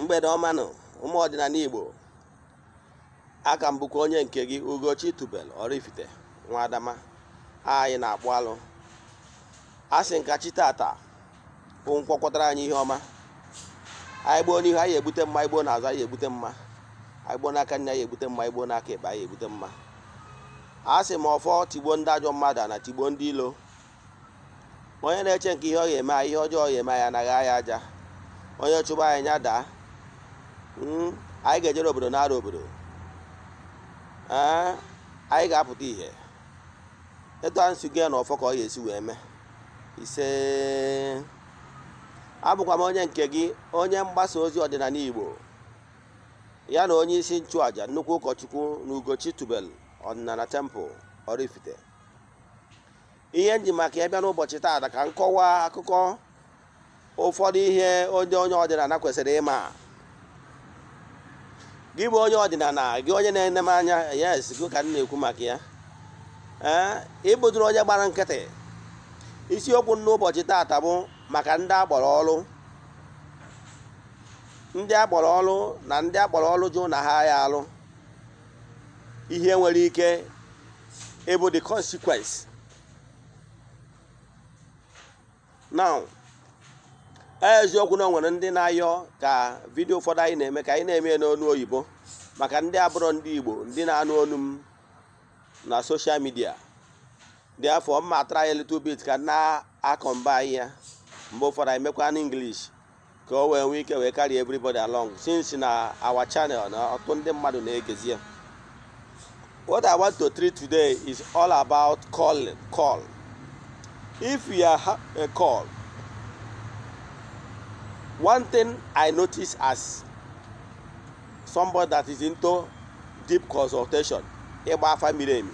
mgbede ọmanụ ụmụ ọdịnala igbo aka m onye nke gị ugochi tubel oraifite nwa adama anyị na-akpụ alụ asị nkachi tata bụ anyị ihe ọma anyị gboo n'ihu anyị egbute mma igbo n'azụ anyị egbute mma anyị gboo n'aka nne anyị egbute mma igbo n'aka ịkpa anyị egbute mma a sị ma ọfọ tigbo ndị ajọ mmadụ na tigbo ndị ilo onye na-eche nke ihe ọ ga-eme ihe ọjọọ ga-eme ya anaghị anyị aja onye chụba anyị nya daa Hmm? anyị ga-ejere obodo na-ara obodo eh? anyị ga-apụta ihe etu anyị si na ọfọ ka ọ ya esi wee mee ise abụkwa m onye nke gị onye mgbasa ozi ọdịnala Igbo ya na onye isi nchụàja nnukwu ụkọchukwu na Ugochi Tubel ọdịnala Temple Oraifite ihe nji maka ya n'ụbọchị taata ka m akụkọ ụfọdụ ihe onye onye ọdịnala kwesịrị ịma gị bụ onye ọdịnala gị onye na-ene m anya yes gị ka m na-ekwu maka ya eh, ịbụdụrụ onye gbara nkịtị isiokwu n'ụbọchị taata bụ maka ndị akpọrọ ọrụ ndị akpọrọ ọrụ na ndị akpọrọ ọrụ jụ na ha ya alụ ihe nwere ike ịbụ the consequence now eziokwu na o nwere ndị na-ayọ ka vidio ụfọdụ anyị na-eme ka anyị na-eme n'onu oyibo maka ndị abụrọ ndị igbo ndị na-anụ onu m na soshal midia dị afọ mma atara anyị little bit ka na-akọmba anyị ya mgbe ụfọdụ anyị mekwa n'English ka o wee nwee ike wee carry everybody along since na awa channel na ọtụtụ ndị mmadụ na-egezi ya what i want to treat today is all about calling call if you are a call one thing i notice as somebody that is into deep consultation ịgba afa miri emi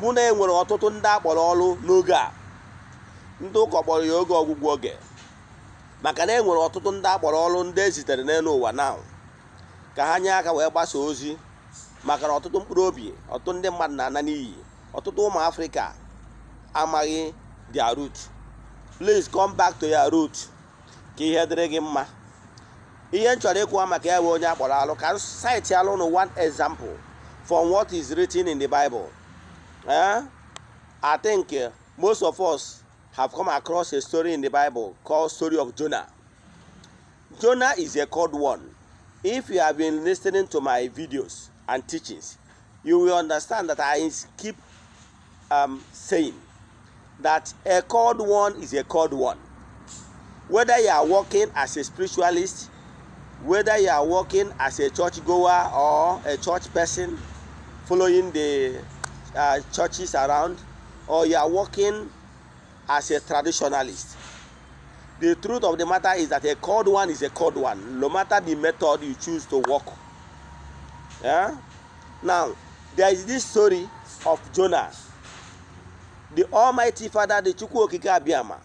mụ na enwere ọtụtụ ndị akpọrọ ọrụ n'oge a ndị ụka kpọrọ ya oge ọgwụgwọ oge maka na enwere ọtụtụ ndị akpọrọ ọrụ ndị ezitere n'elu ụwa na ka ha nye aka wee gbasaa ozi maka na ọtụtụ mkpụrụ obi ọtụtụ ndị mmadụ na-ana n'iyi ọtụtụ ụmụ africa amaghị their rut please come back to your root ka ihe dịrị gị mma ihe m chọrọ ịkwụwa maka ya bụ onye a kpọrọ alụ ka alụ nụ one example from what is written in the Bible eh? I think eh, most of us have come across a story in the Bible called story of Jonah. Jonah is a cold one. If you have been listening to my videos and teachings, you will understand that I keep um, saying that a cold one is a cold one. whether you are working as a spiritualist whether you are working as a church goer or a church person following the uh, churches around or you are working as a traditionalist the truth of the matter is that a cold one is a cold one no matter the method you choose to work yeah? now there is this story of jonah the almighty father the chukwu okike abiyama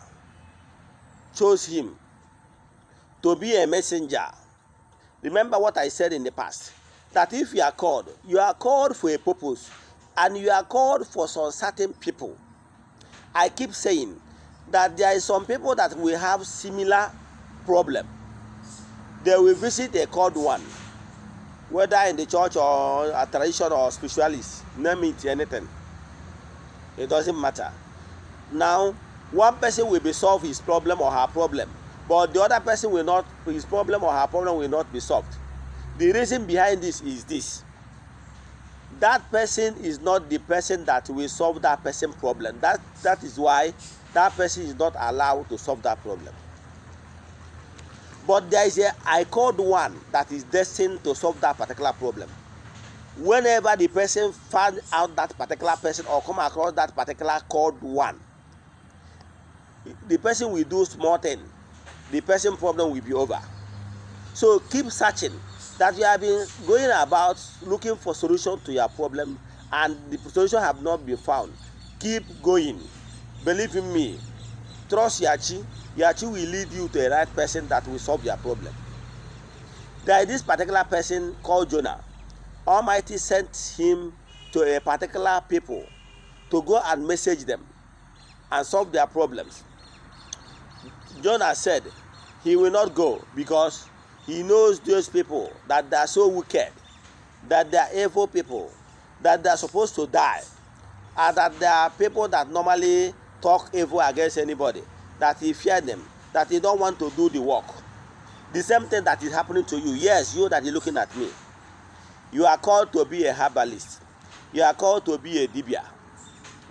chose him to be a messenger. Remember what I said in the past that if you are called, you are called for a purpose and you are called for some certain people. I keep saying that there are some people that will have similar problem. They will visit a called one, whether in the church or a tradition or spiritualist, name it anything. It doesn't matter. Now one person will be solve his problem or her problem but the other person will not his problem or her problem will not be solved the reason behind this is this that person is not the person that will solve that person problem that that is why that person is not allowed to solve that problem but there is a i called one that is destined to solve that particular problem whenever the person find out that particular person or come across that particular called one the person will do small thing the person problem will be over so keep searching that you have been going about looking for solution to your problem and the solution have not been found keep going believe in me trust yachi yachi will lead you to the right person that will solve your problem there is this particular person called jonah almighty sent him to a particular people to go and message them and solve their problems Jonah said he will not go because he knows those people that they are so wicked, that they are evil people, that they are supposed to die, and that they are people that normally talk evil against anybody, that he fear them, that he don't want to do the work. The same thing that is happening to you. Yes, you that is looking at me. You are called to be a herbalist. You are called to be a dibia.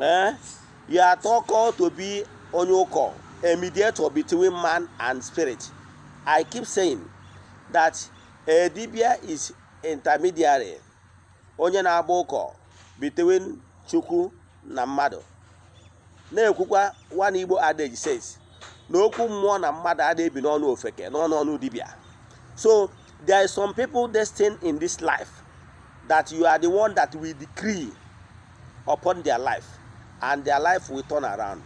Eh? You are called to be onye a mediator between man and spirit. I keep saying that eh, a dibia is intermediary, onye na-agba ụkọ between Chukwu na mmadụ. Na-ekwukwa one Igbo adage says na okwu mmụọ na mmadụ adịghị ebi n'ọnụ ofeke n'ọnụ ọnụ dibia. So there is some people destined in this life that you are the one that we decree upon their life and their life will turn around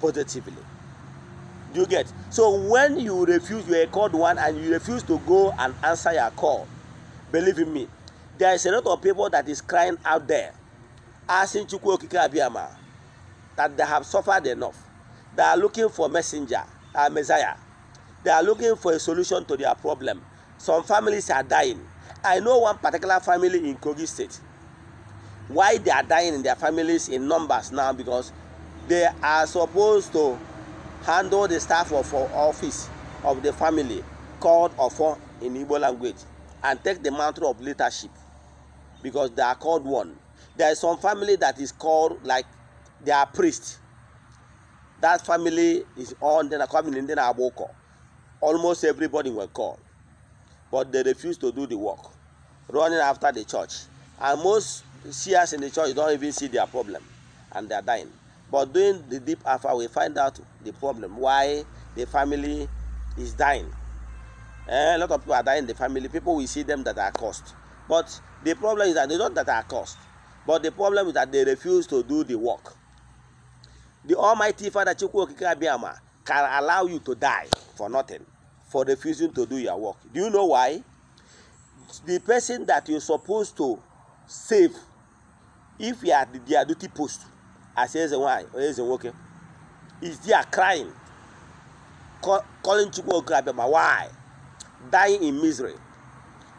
positively. Do you get? So when you refuse, you are called one and you refuse to go and answer your call. Believe in me, there is a lot of people that is crying out there, asking Chukwu Okike Abiyama that they have suffered enough. They are looking for messenger, a uh, messiah. They are looking for a solution to their problem. Some families are dying. I know one particular family in Kogi State. Why they are dying in their families in numbers now because they are supposed to handle the staff of office of the family called for in Igbo language and take the mantle of leadership because they are called one. There is some family that is called like they are priests. That family is on then coming in then Aboko. Almost everybody were called, but they refuse to do the work, running after the church. And most seers in the church don't even see their problem and they are dying. But during the deep alpha, we find out the problem why the family is dying. And eh, a lot of people are dying in the family. People we see them that are caused. But the problem is that they don't that are caused. But the problem is that they refuse to do the work. The Almighty Father Chukwu Okikabiyama can allow you to die for nothing, for refusing to do your work. Do you know why? The person that you're supposed to save, if you are the their duty post, say, eze why? onye eze nwoke is there crying calling chukwu okorobịa ma why dying in misery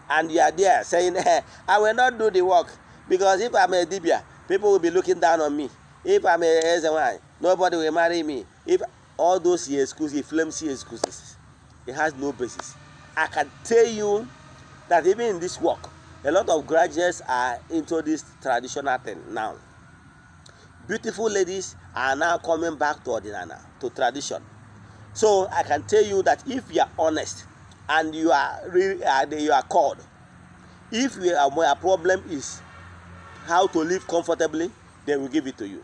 and you are there saying hey, i will not do the work because if i'm a dibia people will be looking down on me if i'm a why, nobody will marry me if all those excuses flimsy excuses it has no basis i can tell you that even in this work a lot of graduates are into this traditional thing now beautiful ladies are now coming back to ordinana to tradition so i can tell you that if you are honest and you are really you are called if you are your problem is how to live comfortably they will give it to you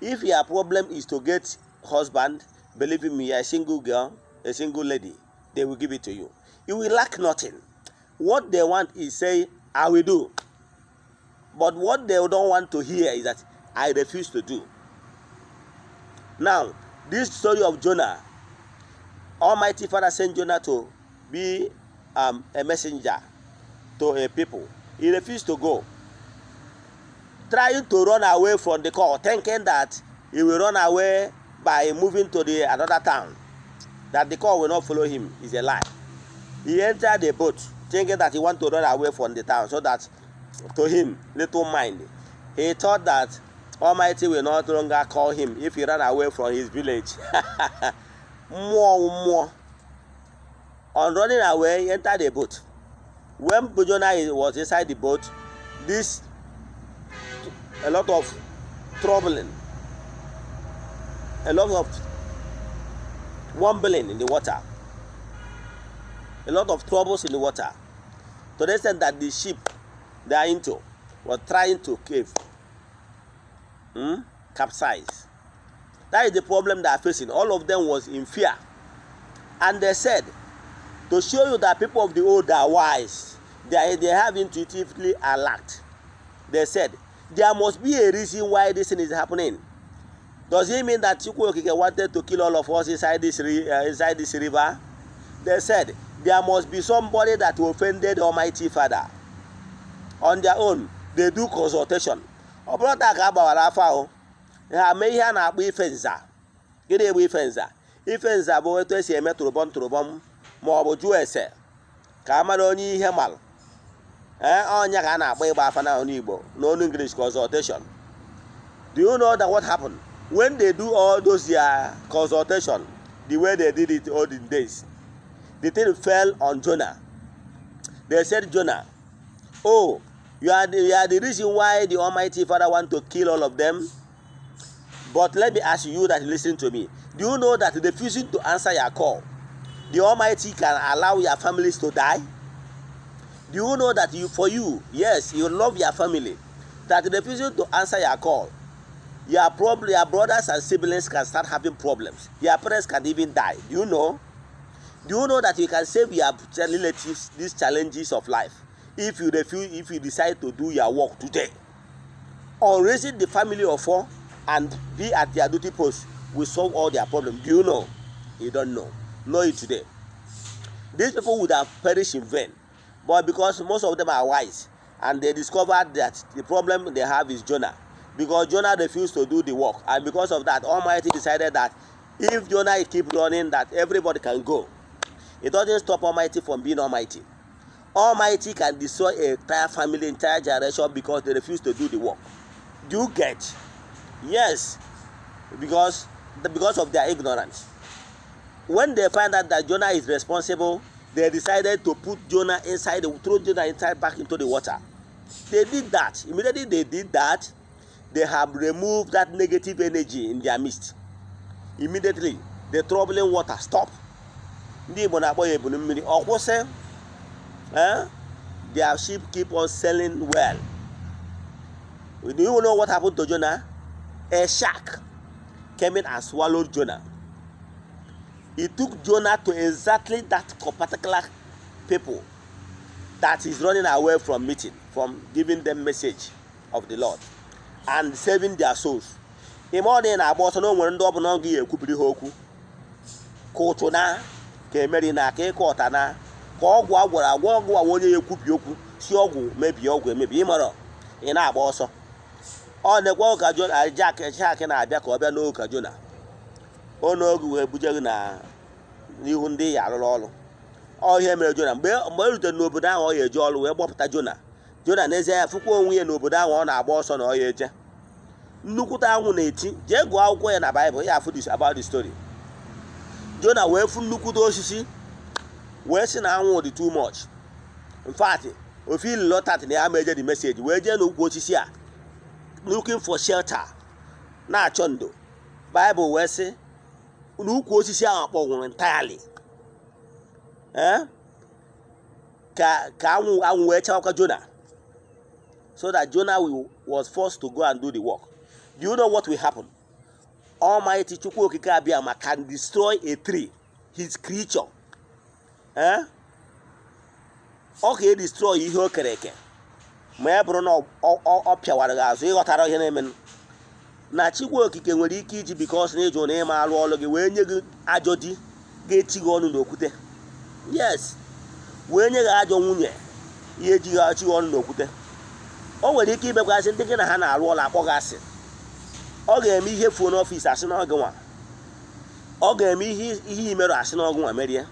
if your problem is to get husband believe me a single girl a single lady they will give it to you you will lack nothing what they want is say i will do but what they don't want to hear is that I refuse to do. Now, this story of Jonah, Almighty Father sent Jonah to be um, a messenger to a people. He refused to go, trying to run away from the call, thinking that he will run away by moving to the another town, that the call will not follow him. Is a lie. He entered the boat thinking that he want to run away from the town so that to him little mind he thought that Almighty will not longer call him if he ran away from his village. More, more. On running away, he entered the boat. When Bujona was inside the boat, this a lot of troubling, a lot of wobbling in the water, a lot of troubles in the water. To the extent that the ship they are into was trying to cave. hmm, capsize. That is the problem they are facing. All of them was in fear. And they said, to show you that people of the old are wise, they, they have intuitively alert. They said, there must be a reason why this thing is happening. Does it mean that Chukwuokike wanted to kill all of us inside this, uh, inside this river? They said, there must be somebody that offended Almighty Father. On their own, they do consultation. ọ bụrụ taa ka a gbawara afọ ahụ ha mee ihe a na-akpọ ife nza gịnị egbu ife nza ife nza bụ etu esi eme tụrụbọm tụrụbọm ma ọ bụ jụọ ese ka a mara onye ihe malụ ee ọnya ka a na-akpọ ịgba afa na ọnụ Igbo n'ọnụ English consultation do you know that what happened when they do all those their consultation the way they did it olden days the thing fell on Jona. they said Jonah oh You are, the, you are the reason why the Almighty Father want to kill all of them. But let me ask you that listen to me. Do you know that refusing to answer your call, the Almighty can allow your families to die? Do you know that you, for you, yes, you love your family, that refusing to answer your call, your, prob- your brothers and siblings can start having problems. Your parents can even die. Do you know? Do you know that you can save your relatives these challenges of life? if you refuse if you decide to do your work today on raising the family of four and be at their duty post will solve all their problems do you know you don't know know it today these people would have perished in vain but because most of them are wise and they discovered that the problem they have is jonah because jonah refused to do the work and because of that almighty decided that if jonah keep running that everybody can go it doesn't stop almighty from being almighty Almighty can destroy a entire family, entire generation because they refuse to do the work. Do you get? Yes, because because of their ignorance. When they find out that Jonah is responsible, they decided to put Jonah inside, throw Jonah inside back into the water. They did that. Immediately they did that, they have removed that negative energy in their midst. Immediately, the troubling water stop. Ndị Igbo na-akpọ ya mmiri ọ kwụsị eh? their sheep keep on selling well. Do you know what happened to Jonah? A shark came in and swallowed Jonah. e took Jonah to exactly that particular people that is running away from meeting, from giving them message of the Lord and saving their souls. Ị ọ na agba ọsọ na nwere ndị ọbụla ọ ga ekwubiri ha okwu ka ụtụ na ka emeri na ka ịkọ e ọta na ka ọgwụ agwara agwa ọgwụ a onye ya ekwubi okwu si ọgwụ mebie ọgwụ emebi ịmara ị na-agba ọsọ ọ na-ekwe ụka jona jak jak na-abịa ka ọ bịa n'ụka jona ọ n'oge wee buje gị n'ihu ndị ya arụrụ ọrụ ọ ihe mere jona mgbe e rutere n'obodo ahụ ọ ya eje ọrụ wee gbọpụta jona jona n'ezie ya fụkwa onwe ya n'obodo ahụ ọ na-agba ọsọ na ọ ya eje nnukwute anwụ na-eti jee gụọ akwụkwọ ya na baịbụl ya story jona wee fụ nnukwute osisi wee sị na anwụ dị too much in fact ofe ili lọtat na ya ma eje dị meseji wee jee n'ukwu osisi a looking for shelter na-achọ ndo baịbụl wee sị na ukwu osisi ahụ akpọnwụrụ entirely eh? ka ka anwụ anwụ wee chawakwa jona so that Jona was forced to go and do the work do you know what will happen almighty chukwu okike abịa ma can destroy a tree his creature ee ọ ka edistrọị ihe o kere eke ma ya bụrụ na ọ pịawara gị azụ ịghọtara ihe na-emenụ na chikwa okike nwere ike iji bikos na ịjụ na ịma arụ ọrụ gị wee nye gị ajọ di ga-echi gị ọnụ n'okwute yes wee nye gị ajọ nwunye ihe eji gị achị gị ọnụ n'okwute o nwere ike ibekwasị ndị gị na ha na-arụ ọrụ akpọ gị asị ọ ga-eme ihe fuo n'ọfịs asị n'ọgụ nwa ọ ga-eme ihe imerụ asị n'ọgụ nwa merie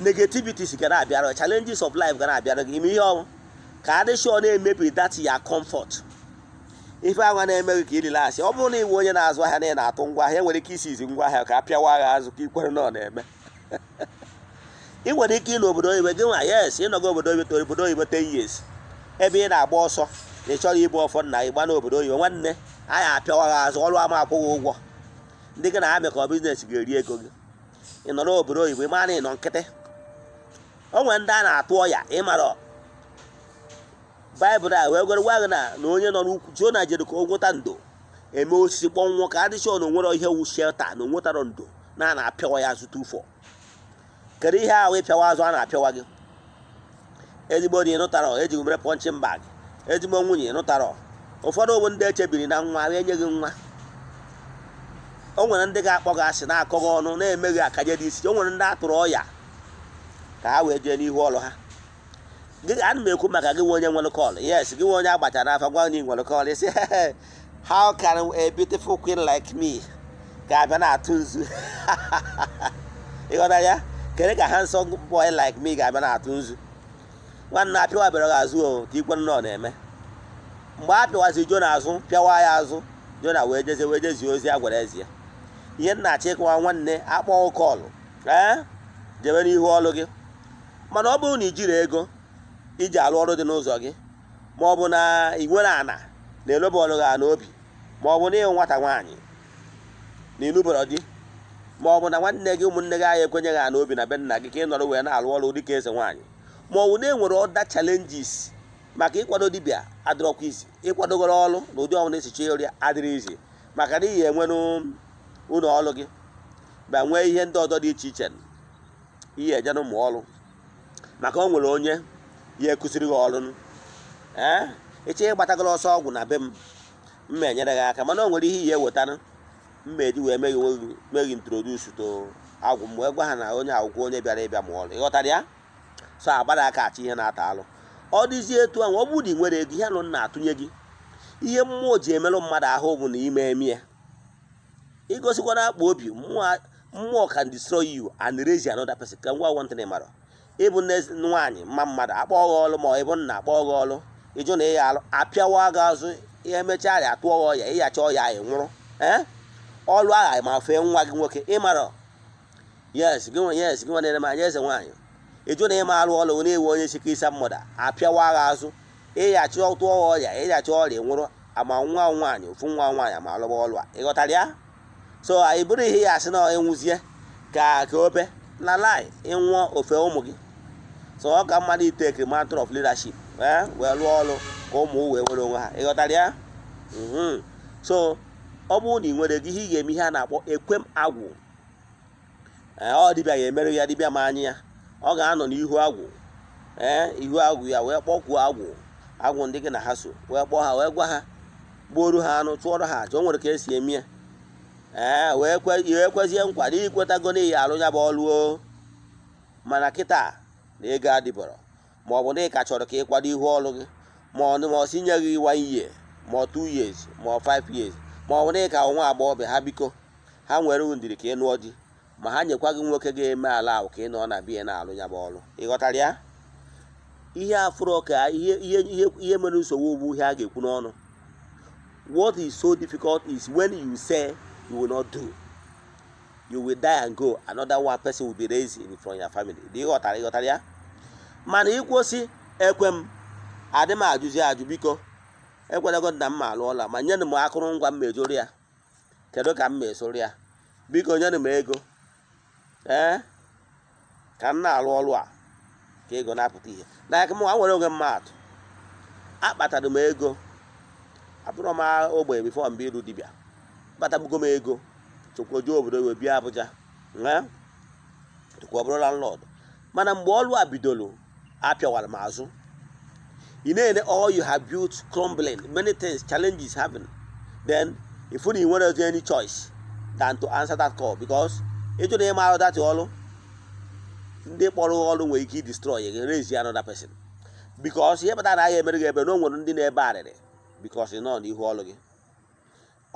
negativities gara abịara challenges of life gara abịara gị ime ihe ọrụ ka ọ na-emebi that ya comfort ife agwa na gị ka ịrila asị ọ bụrụ na iwe onye na-azụ ahịa na ị na-atụ ngwa ahịa e nwere ike isi izi ngwa ahịa ka a pịawa agha azụ ka ikwere na ọ na-eme ị nwere ike ịnọ obodo oyibo gị nwa yes ịnọgo obodo oyibo to obodo oyibo ten years ebe ị na-agba ọsọ na ị chọrọ ịbụ ọfọ na ịgba n'obodo oyibo nwanne anyị apịawa gị azụ ọrụ ama akwụghị ụgwọ ndị gị na ha mekọ biznes ga-eri ego gị ị obodo oyibo ị mara na ị nọ nkịtị onwe ndị a na-atụ ọya ịmara baịbụl a wee gwara gwaghị na na onye nọ n'ukwu jona jere ka o nweta ndo eme osisi kpọnwụọ ka adịchọ na onwere ihe wu shelta na onwetarọ ndo na a na-apịawa ya azụ tufọ kedu ihe ahụ ịpịawa azụ a na-apịawa gị ezigbo di ịnụtarọ ejighị mere pọnchịn bag ezigbo nwunye ịnụtarọ ụfọdụ bụ ndị echebiri na nwa wee nye gị nwa o nwere ndị ga-akpọ gị asị na-akọ gị ọnụ na-emeghị akaje dị isi o nwere ndị atụrụ ọya ka ha wee jee n'ihu ọrụ ha gị ana m ekwu maka gị nwe onye nwere kọl yes gị nwe onye agbachara afa gwa onye nwere kọl isi how can a beautiful queen like me ga-abịa na-atụ nzu ịghọta ya kedu ka handsome boy like me ga-abịa na-atụ nzu nwanne a pịawa bịara gị azụ o ka ikwe nnọọ na-eme mgbe a pịawazi jo n'azụ pịawa ya azụ jo na wee jezie wee jezie ozi a gwara ezi ya ihe nna achọ ịkọwa nwanne akpọọ kọlụ ee jebe n'ihu ọlụ gị mana ọ bụrụ na i jiri ego iji arụ ọrụ dị n'ụzọ gị ma ọ bụ na ị ana na-eloba ọrụ gị n'obi ma ọ bụ na ịhụ nwata nwaanyị na ịlụbara dị ma ọ bụ na nwanne gị ụmụnne gị anyị ekwenyeghị ana obi na be nna gị ka ị nọrọ wee na-arụ ọrụ dịka eze nwaanyị ma ọ bụ na enwere ọda chalenjis maka ịkwado dibịa adịrọkwa izi ịkwadogoro ọrụ na ụdị ọnwụ na-esichi ọrịa adịrị izi maka na ihe enwere ụlọ ọrụ gị ma nwee ihe ndị ọzọ dị iche iche ihe ejenụ ụmụ ọrụ maka o nwere onye ya ekụziri gị ọrụ ee eche ihe gbatagoro ọsọ ọgwụ na be m mma enyere gị aka mana o nwere ihe ihe wetara mma eji wee meghị onwe gị meghị to agwụ m wee gwa ha na onye agwụgwọ onye bịara ịbịa ma ọrụ ịghọtara ya so agbada aka achị ihe na-ata alụ ọ dịzie etu ahụ ọ bụ na ị nwere ego ihe anụ na-atụnye gị ihe mmụọ ji emerụ mmadụ ahụ bụ na ime eme ya igosikwara akpa obi mmụọ can destroy you and raise another person ka ngwa one thing mara ịbụ nne nwaanyị mma mmadụ akpọọ gị ọlụ ma ọ ịbụ nna akpọọ gị ọlụ ịjụ na ịya alụ apịawa gị azụ emechaa ya atụọ gị ọya ịyacha ọya ị nwụrụ ee ọlụ agha ma fee nwa gị nwoke ịmara yes gị yes gị eze nwaanyị ịjụ na ịma alụ ọlụ na-ewu onye sike isa mmadụ apịawa gị azụ ịyacha ọtụọ gị ọya ịyacha ọrịa nwụrụ ama nwa nwaanyị ofu nwa nwaanyị ma alụba ọlụ a ịghọtara ya so anyị bụrụ ihe ya asị na enwuzie ka ka obe na-lie ịnwụọ ofe ụmụ gị so ọ ka mmadụ ite matter of leadership eh, wee lụọ ọrụ ka ụmụ wee nwere onwe ha ịghọtara ya mm-hmm. so ọ bụrụ na ị nwere gị ihe ị ga-eme ihe a na-akpọ ekwem agwụ eh, ọ dịbịa ga-emerụ ya dịbịa ma anyị ya ọ ga-anọ n'ihu agwụ ee eh, ihu agwụ ya wee kpọkwuo agwụ agwụ ndị gị na ha so wee kpọọ ha wee gwa ha gbuoru ha anụ tụọrọ ha aja o nwere ka esi eme ya Eh, ee wee kwezie nkwado ikwetago n'ihi alụ ya bụ ọlụo mana kịta na ego adịbọrọ ma ọ bụ na ị ka chọrọ ka ịkwado ihu ọlụ gị ma ọ si nye gị one year ma two years ma five years ma ọ bụ na ị ka nwa ha biko ha nwere ndiri ka ị nụọ di ma ha nyekwa gị nwoke ga-eme ala ahụ ka ị nọ na bie na-alụ ya bụ ọlụ ghọtara ya ihe afụrọ ka ihe mere nsogbu ugbu ihe a ga-ekwu n'ọnụ what is so difficult is you will not do you will die and go another one person will be raised from your family dị ghọtara ịghọtara ya mana ikwu ekwem ekwe adị m ajụzi ajụ biko ekwenego na m alụọla ma nye m akụrụngwa m mejụrụ ya kedu ka m mesoro ya biko nyere m ego ee eh? ka m na-alụ ọlụ a ka ego na-apụta ihe n'aka m nwa nwere onwe mmadụ akpatara m ego abụrụ m ogbenye bifo mgbe iru dibịa akpatagbugo m ego tụkwa obodo wee bịa Abuja na tụkwa obodo bụrụ landlord mana mgbe ọlụ a bidoro apịawara m azụ ị na-ele all you have built crumbling many things challenges having then ifu na ị nwere any choice than to answer that call because ịjụ na ịmara datị ọlụ ndị kpọrọ ọlụ nwere ike destroy gị raise another person because ihe kpatara na ahịa emere gị ebe na o nwere ndị na-ebe arịrị because ị nọ n'ihu ọlụ gị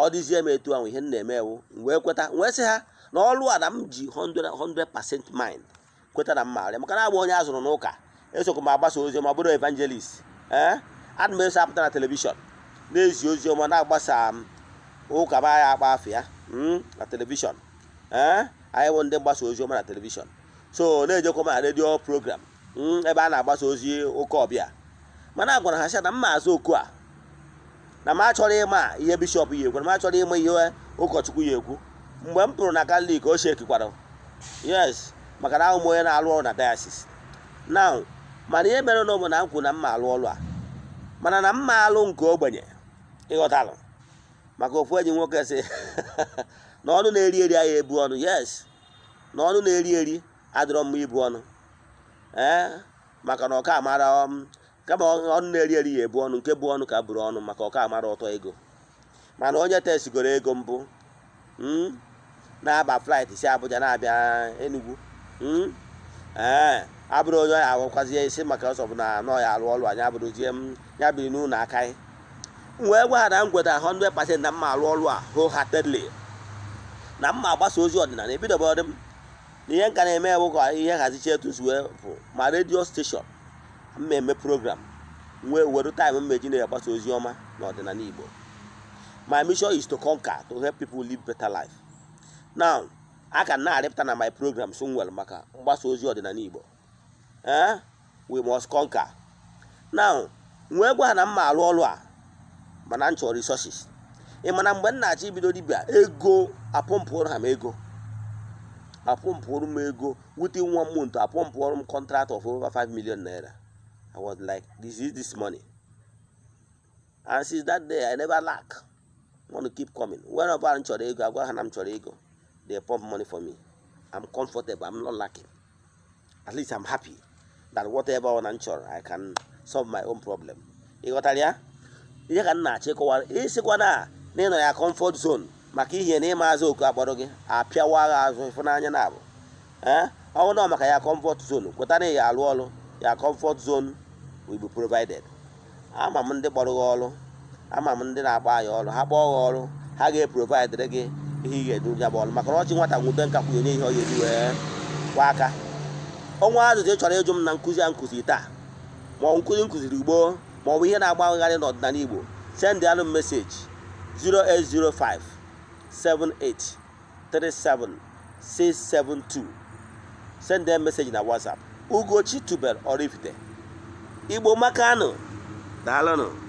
ọ dịzie m etu ahụ ihe m na-eme wụ wee kweta wee sị ha na ọlụ a na m ji 100% maịnd kweta na mma maara maka na onye a zụrụ n'ụka esokwa m agbasa ọma bụrụ evangelist ee eh? ana m eso apụta na telivishọn na-ezi ọma na-agbasa m ụka ma ya akpa afọ ya hmm, na telivishọn ee eh? anyị bụ ndị mgbasa ọma na telivishọn so na-ejekwa m na redio program hmm, ebe a na-agbasa ozi ụka ọbịa mana agwara ha sị na mma azụ oku a na m achọrọ ịma ihe bishọp ya ekwu na m achọrọ ịma ihe ụkọchukwu yi ekwu mgbe m pụrụ na katọlik o shekikwara yes maka na ahụ m onye na-alụ ọrụ na dayasis na mana ihe mere na ụmụ na m kwuru na mma alụ ọrụ a mana na mma alụ nke ogbenye ịghọtalụ maka ofu enyi nwoke si na ọnụ na-eri eri ahịa ebu ọnụ yes na ọnụ na-eri eri adịrọ mma ibu ọnụ ee eh, maka na ọka amara m um, kama ọnụ na-eri eri ya ebu ọnụ nke bụ ọnụ ka bụrụ ọnụ maka ọka amara ọtọ ego mana onye testigoro ego mbụ hmm, na-aba flaịt si Abuja na-abịa Enugu hmm, ee eh, abụrụ onye ọya agwakwazie isi maka ọsọ bụ na ya alụ a anyị abụrụzie m hmm, ya biri n'ụlọ aka anyị wee gwaghara m gweta pasent na mma alụ ọlụ a wholeheartedly na mma agbasa ozi ọdịnala ebidobeọdị m na ihe nka na-eme bụ ka ihe nhazichi etu bụ ma redio steshọn mmemme program nwee were time mmeji na-agbasa ozi ọma n'ọdịnala Igbo my mission is to conquer to help people live better life now a ka na-arịpụta na my program so nwere maka mgbasa ozi ọdịnala Igbo ee eh? we must conquer now nwee gwa na mma arụ ọrụ a mana m chọrọ resources ị mana mgbe m na-achọ ibido dibịa ego apụmpụrụ ha m ego apụmpụrụ m ego wute nwa m month apụmpụrụ m contract of over 5 million naira I was like, this is this money. And since that day, I never lack. I want to keep coming. Whenever I'm chọrọ ego, I go and I'm ego. They pump money for me. I'm comfortable. I'm not lacking. At least I'm happy that whatever one I'm I can solve my own problem. Ị got ya? Ihe ka m na-achọ ịkọwa ịsịkwa na na ị nọ ya comfort zone maka ihe na ịma azụ oku agbado gị apịawa agha azụ ịfụnanya na abụ ọ bụrụ na maka ya comfort zone kweta na ya alụ ọrụ ya comfort zone will be provided ama m ndị kpọrọ gị ọrụ ama m ndị na-agba anyị ọrụ ha kpọọ gị ọrụ ha ga-eprovaidịrị gị ihe ị ga-edu ya bụ ọrụ maka na ọchị nwata nwudo nka kwụnye ihe ọ ga-eri wee kwa aka ọnwa azụzụ ị chọrọ ịjụ m na nkụzi a nkụzi taa ma ọ bụ nkụzi nkụziri igbo ma ọ bụ ihe na-agbagharị n'ọdịnala igbo send anụ meseji 0805 7837 672 send meseji na whatsapp ugochi tubel Oraifite igbo makano daalụnụ